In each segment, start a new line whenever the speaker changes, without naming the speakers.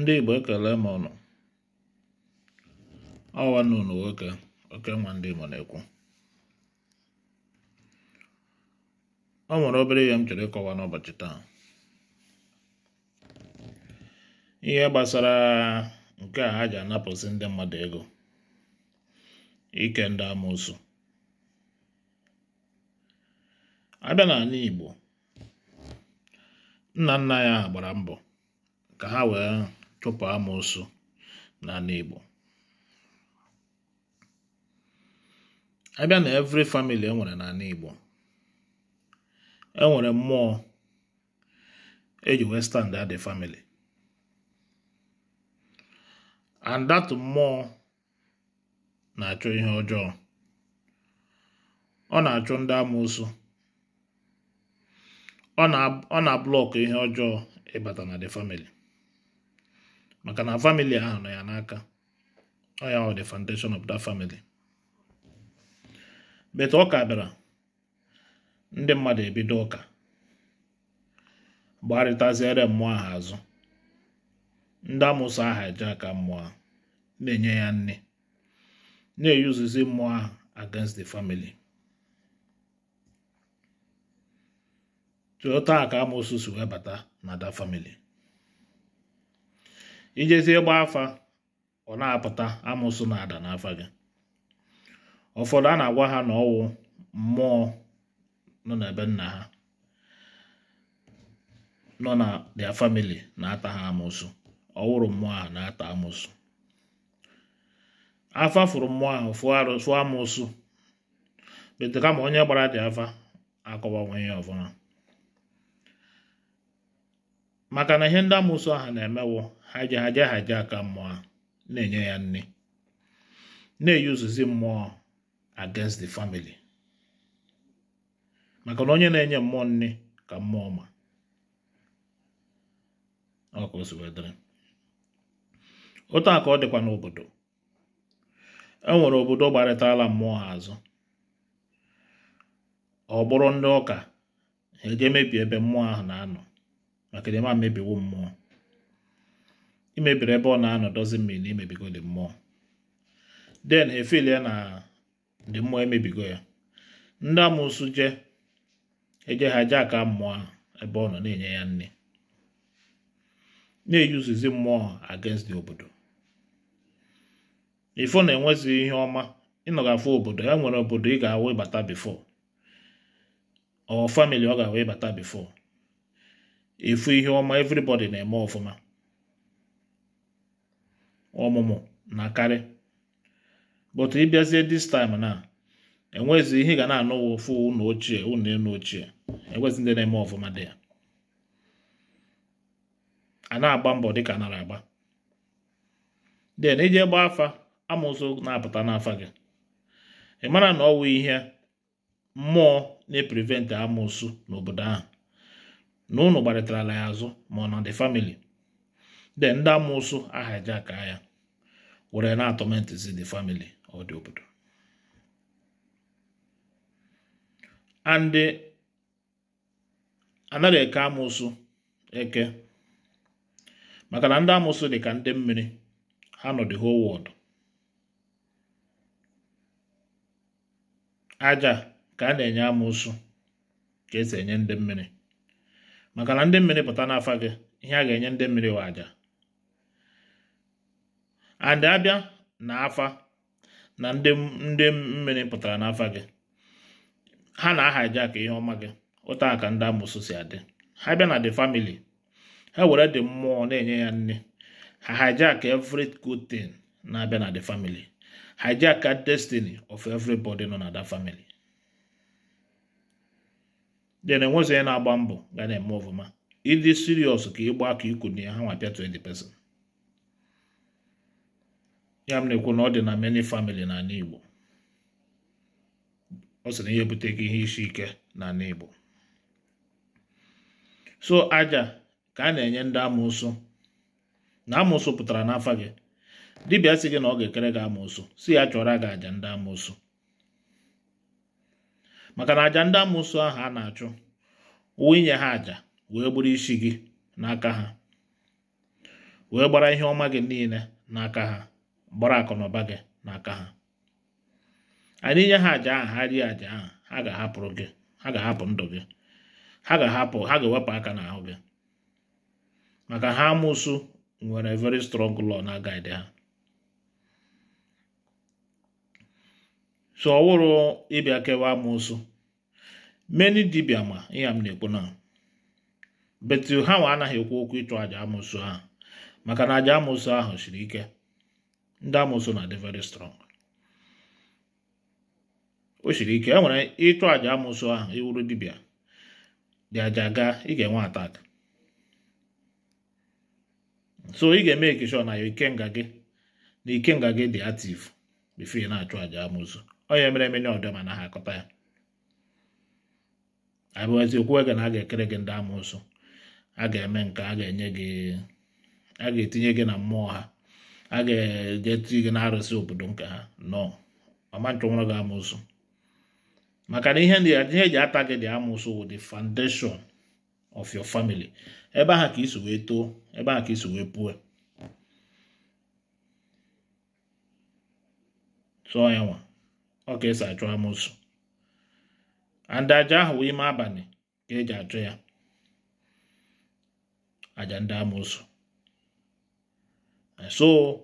ndị Igbo ekele m ụnụ ọwa nna unu nwoke oke nwa ndị Igbo na-ekwu ọ nwere obere ihe m chọrọ ịkọwa n'ụbọchị taa ihe gbasara nke a ha ji anapụsị ndị mmadụ ego ike ndị amụsụ abịa n'ala Igbo nna nna ya gbara mbọ ka ha wee tupu amoosu n'ala Igbo abịa na every famili enwere n'ala Igbo enwere mmụọ eji wee stand the family and that mmụọ na-achọ ihe ọjọọ ọ na-achụ ndị amoosu ọ na-ablọkụ ihe ọjọọ ịbata na the family maka na famili ahụ nọ ya n'aka ọ ya the foundation of that family beta ọka bịara ndị mmadụ ebido ụka gbarịtaziere mmụọ ahụ azụ ndị amụsụ aha eje aka mmụọ na-enye ya nne na-eyuzizi mmụọ ahụ against the family taa ka amụsụ si webata na that family ijezie gba afa ọ na-apụta amụsụ na-ada n'afa gị ụfọdụ a na-agwa ha na ọwụ mmụọ nọ n'ebe nna ha nọ na dia famili na-ata ha amụsụ ọwụrụ mmụọ ha na-ata amụsụ afa furu mmụọ ahụ fụọ amụsụ bete kama onye gbara dị afa akọwanwe ya ọfụma maka na ihe ndị amụsụ ahụ na-emewo haja haja haja aka mmụọ na-enye ya nne na uzuzi mmụọ against the family maka na onye na-enye mmụọ nne ka mmụọ ma otu a ka ọ dịkwa n'obodo e nwere obodo gbarịtala mmụọ ha azụ ọ bụrụ ndị ụka ha eje mebie ebe mmụọ ahụ na-anọ maka na ịma mebiwo mmụọ imebiri ebe ọ na-anọdụzi mmiri na imebigo dị mmụọ den efil ya na dị mmụọ emebigo ya ndị amụsụ je eje aka mmụọ ebe ọ nọ na-enye ya nne na-eyuzizi mmụọ against the obodo ifo na-enwezi ihe ọma ịnọgafụ obodo ya nwere obodo ị ga-awụ ịbata bifo ọ famili ọ ga-awụ ịbata bifo ihe ọma everybody na-eme ọfụma ọmụmụ na karị but ịbịazie this time na enwezi ihe ga na anụ ụfụ ụlọ ochie ụlọ elu ochie enwezi ndị na-eme ọfụma dị ya a na-agba mbọ dịka nara agba den ije gbaa afa amụsụ na-apụta n'afa gị ị mara na ọwụ ihe mmụọ na-eprivent amụsụ n'obodo ahụ na ụnụ ala ya azụ ma ọ na the family de ndị amụsụ ahajaka ya were na-atọmentizi the family ọ dị obodo and anaghị eke amụsụ eke maka na ndị amụsụ dị ka ndị mmiri ha nọ the whole world aja ka a na-enye amụsụ ka esi enye ndị mmiri maka na ndị mmiri pụta n'afa gị ihe a ga-enye ndị mmiri wa aja and abịa na afa na ndị ndị mmiri pụtara n'afa gị ha na-ahajak ihe ọma gị ụta aka ndị amụsụ si adị ha bịa na the family ha were dị mmụọ na-enye ya nne ha hijack every good thing na-abịa na the family hijack destiny of everybody nọ na that family then enwezi onye na-agba mbọ ga na-eme ọfụma ịdị serious ka ịgba aka iku na ya ha nwa pịa 20 percent ya m na-ekwu na ọ dị na many family n'ala Igbo ọ sị na ihe bute ihe isi ike n'ala Igbo so aja ka a na-enye ndị amụsụ na amụsụ pụtara n'afọ gị dibịa sị gị na ọ ga-ekere gị amụsụ si ya chọrọ gị aja ndị amụsụ maka na aja ndị amụsụ ahụ a na-achụ uwe ha aja wee gburu isi gị n'aka ha wee gbara ihe ọma gị niile n'aka ha gbara gị na aka gị n'aka ha anyị nye ha àjà ahụ ha rie àjà ahụ ha ga-ahapụrụ gị ha ga-ahapụ ndụ gị ha ga-ahapụ ha ga-ewepụ aka n'ahụ gị maka ha amụsụ nwere very strong law na guide ha so ọ wụrụ ịbịa kewa amụsụ meni dibịa ma ihe m na-ekwu na betu ha nwa anaghị ekwu okwu ịchụ àjà amụsụ ha maka na àjà amụsụ ahụ siri ike ndị amụsụ na-adị very strong o siri ike e nwere ịchụ àjà amụsụ ahụ iwuru dibia dị àjà gaa ị ga-enwe atak so ị ga-eme ekishọ na ikenga gị na ikenga gị dị ativ bifo na-achụ àjà amụsụ onye mere emenye ọdịma na ha akọta ya abụghịzi okwu ege na a ga-ekere gị ndị amụsụ a ga-eme nke a ga-enye gị a ga-etinye gị na mmụọ ha ha ga-ejetụ gị na-arụsị obodo nke ha nọ ọma nchọnwụrụ gị amụsụ maka na ihe eji ata gị dị amụsụ wụ the foundation of your family ebe ahụ ka isi wee too ebe ahụ ka isi wee puo tụọ ya nwa ọ ka esi achụ amụsụ anda aja ahụ ime abalị ka eji achụ ya aja ndị amụsụ Eh, so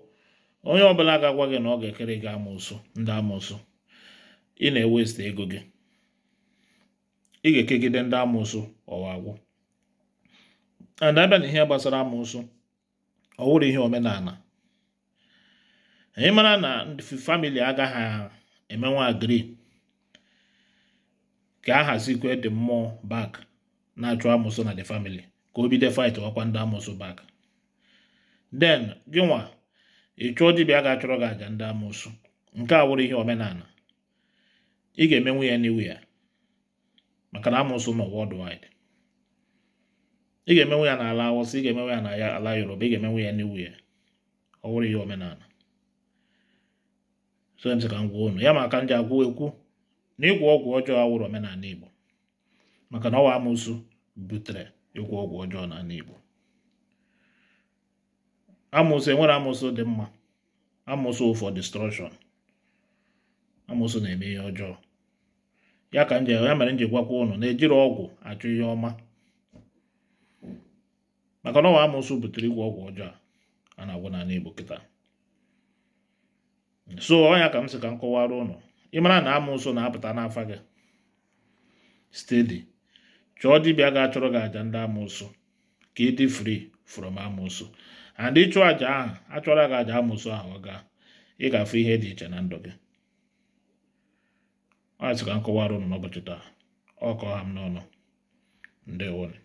onye ọbụla ga-agwa gị na ọ ga-ekere gị amụsụ ndị amụsụ ị na-ewesta ego gị ị ga-ekegide ndị amụsụ ọwagwụ agwụ and abịa na ihe gbasara amụsụ ọ wụrụ ihe omenala anyị mara na ndị famili agaghị emenwe agri ka a hazikwe dị mmụọ bak na-achụ amụsụ na the family ka o bido fight ọkwa ndị amụsụ bak den gị nwa ị chụọ dibịa ga-achọrọ gị àjà ndị amoosu nke a wụrụ ihe omenala ị ga-emenwu ya n'iwu ya maka na amoosu nọ worldwide ị ga-emenwu ya n'ala awụsa ị ga-emenwu ya n'ala yoruba ị ga-emenwu ya n'iwu ya ọ wụrụ ihe omenala so m ka m gwa unu ya maka m ji agwụ ekwu na ịgwọ ọgwụ ọjọọ a awụrụ omenala igbo maka na ọwa amoosu butere ịgwọ ọgwụ ọjọọ n'ala igbo amụsụ enwere amụsụ dị mma amụsụ for destruction amụsụ na-eme ihe ọjọọ ya ka ya mere nji gwakwa ụnụ na-ejiri ọgwụ achụ ihe ọma maka na ọwa amụsụ butere igwe ọgwụ ọjọọ a na-agwụ n'ala Igbo kịta so ọnya ka m sị ka m kọwara ụnụ ịmara na amụsụ na-apụta n'afa gị stedi chọọ dibịa ga-achọrọ gị àjà ndị amụsụ ka ịdị frii. from amosu and ịchụ aja ahụ achọrọ gị aja amụsụ ahụ ọ ga ị ga-afụ ihe dị iche na ndụ gị ọ ka m kọwara ụnụ n'ụbọchị taa ọ kọọ ha m n'ọnụ ndewone